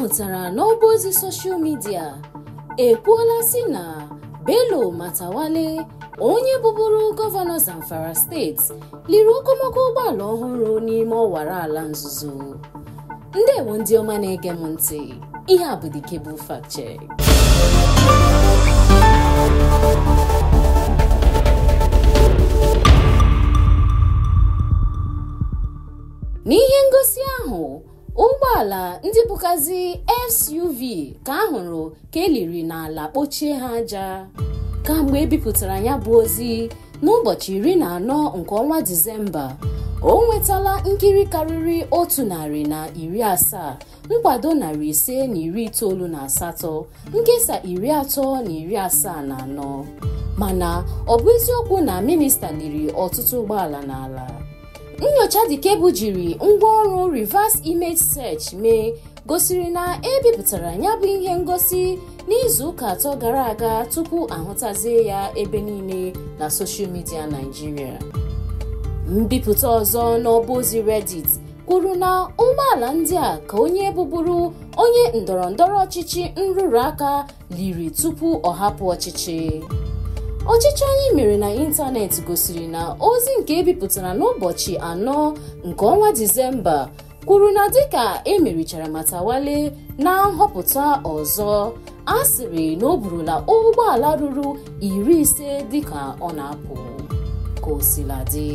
na n'ọba ozi soshal midia ekwuola si na Bello matawale onye bụbụrụ gọvanọ Zamfara steeti liri okomoko ụgbọala ọhụrụ n'ime ọwara ala nzuzo ndewo ndị ọma na-ege m ntị ihe a bụ Dikebụ Fact Check n'ihe ngosi ahụ ụgbọala ndị bukazi SUV ka ahụrụ ka eliri n'ala kpochie ha aja kamgbe ebipụtara ya bụ ozi n'ụbọchị iri na anọ nke ọnwa Disemba o nwetala nkiri karịrị otu narị na iri asaa nkwado narị ise na iri itoolu na asatọ nkesa iri atọ na iri asaa na anọ mana ọ bụ eziokwu na minista liri ọtụtụ ụgbọala n'ala nyocha dikebu jiri ngwaọrụ reverse image search mee gosiri na ebipụtara ya bụ ihe ngosi n'izuụka atọ gara aga tupu ahụtazie ya ebe niile na soshal midia naijiria mbipụta ọzọ n'ọba ozi redit kwuru na ụgbọala ndị a ka onye bụbụrụ onye ndọrọ ọchịchị nrụrụ aka liri tupu ọ hapụ ọchịchị ọchịchọ anyị mere na ịntanetị gosiri na ozi nke ebipụtara n'ụbọchị anọ nke ọnwa disemba kwuru na dịka emerichara Matawale na nhọpụta ọzọ a sịrị na o burula ụgbọala ruru iri ise dịka ọ na-apụ ka o dị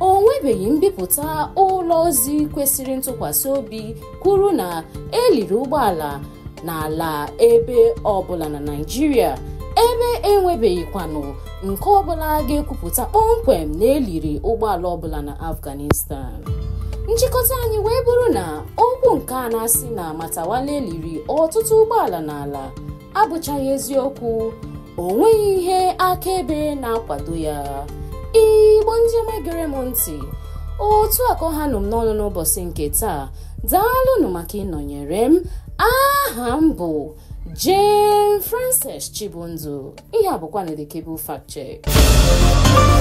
o nwebeghị mbipụta ụlọ ozi kwesịrị ntụkwasị obi kwuru na eliri ụgbọala n'ala ebe ọ bụla na Naịjirịa ebe enwebeghịkwanụ nke ọbụla ga-ekwupụta kpọmkwem na eliri ụgbọala ọbụla na afghanistan nchịkọta anyị wee bụrụ na okwu nke a na-asị na matawale eliri ọtụtụ ụgbọala n'ala abụchaghị eziokwu o nweghị ihe akaebe na-akwado ya igbo ndị ọma gere m ntị otu akọ ha nọ n'ọnụ n'ụbọchị nke taa daalụnụ maka ịnọnyere m a aha m bụ Jane Frances Chibunzo ihe a bụkwa na The Cable Fact Check